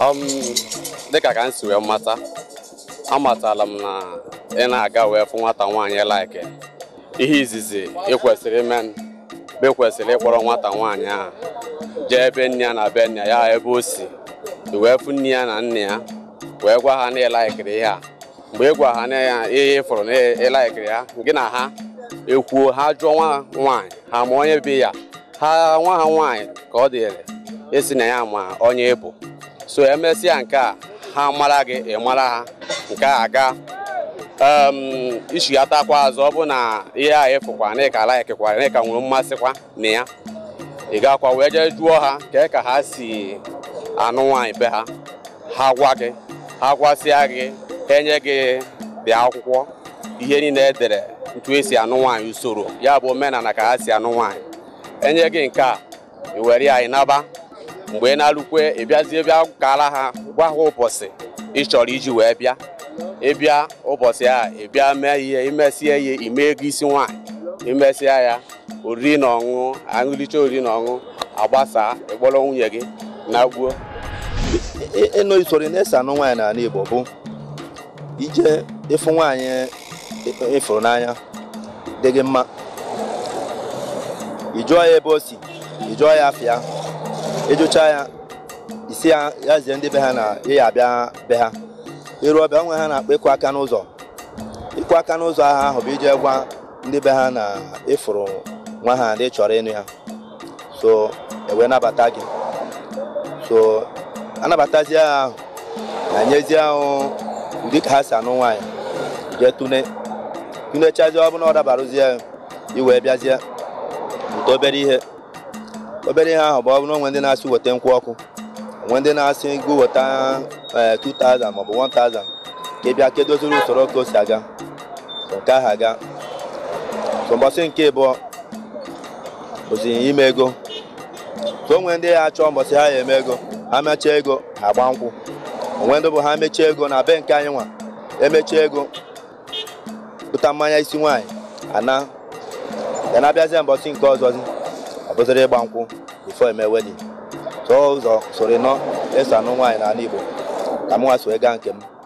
Um, dịka ka m si wee mata amatala m na ị na-aga wee fụ nwata nwaanyị laiki ihe izizi ị kwesịrị ime be kwesịrị ịkpọrọ nwata nwaanyị ahụ jee ebe nne ya na be nne ya ebe o si wee fụ nne ya na nne ya wee gwa ha na ịlaikiri ihe a mgbe ị gwa ha na ihe ịfụrụ na ịlaikiri ya gị na ha ekwuo ha jụọ nwa nwaanyị ha ma onye bi ya ha nwa ha nwaanyị ka ọ dịrị esi na ya ma onye ịbụ e so emesịa nke a ha mara gị ị mara ha nke a aga um, ichigatakwa azụ ọ bụ na ihe a ịfụkwa na ịka laikikwa na ka nwere mmasịkwa na ya ị gakwa wee jee jụọ ha kee ka ha si anụ nwaanyị be ha ha gwa gị ha gwasịa gị enye gị dị akwụkwọ ihe niile edere ntu esi anụ nwaanyị usoro ya bụ omenala ka ha si anụ nwaanyị enye gị nke a i were ya anyị naba mgbe ị na-alụkwe ị bịazie bịa kara ha gwa ha ụbọchị ị chọrọ iji wee bịa ịbịa ụbọchị a ịbịa bịa mee ihe imesie ihe ime ego isi nwaanyị imesịa ya oriri na ọṅụ aṅụlicha oriri na ọṅụ agbasa ịkpọrọ nwunye gị na gbuo ịnụ usoro na-ese anụ nwaanyị n'ala Igbo bụ ije ịfụ nwaanyị ịfụrụ n'anya dị gị mma ị ya ebe o si ị ya afịa ịjụcha ya isi ya ya zie ndị be ha na ịya abịa be ha ịrụ ọbịa onwe ha na-akpa ịkụ aka n'ụzọ ịkụ aka n'ụzọ aha ahụ bụ iji gwa ndị be ha na ịfụrụ nwa ha na chọrọ ịnụ ya so ewee nabata gị so anabatazie ha ahụ na nyezie ahụ ndị ka ha si anụ nwaanyị jee tune tunechazie ọ bụla ọ dabarụzie iwee bịazie bute ihe obere ihe ahụ bụ ọ bụrụ onwe ndị na-asị weta nkwụ ọkụ onwe ndị na-asị go weta 2000 e, maọbụ 1000 ka ị bịa kedoziri usoro ka o si aga nke ahụ aga so mbọsị nke ịbụọ bụzi ime ego ka onwe ndị ha achọ mbọsị ha ya eme ego ha mechaa ego ha gba nkwụ onwe ndị bụ ha mechaa ego na be nke anyị nwa emechaa ego pụta mmanya isi nwaanyị ana ya na-abịazie mbọchị nke ọzọzi kpụziri ịgba nkwụ bifo eme wedin tụọ ụzọ soro nọ esi anụ nwaanyị n'ala Igbo ka m nwa so gaa nke m